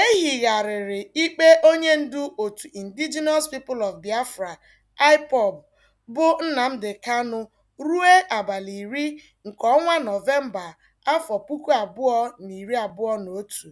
E higharịrị ikpe onye ndu otu Indigenous People of Biafra (IPOB) bụ Nnamdi kanu ruo abalị iri nke ọnwa Nọvemba, afọ puku abụọ na iri abụọ na otu.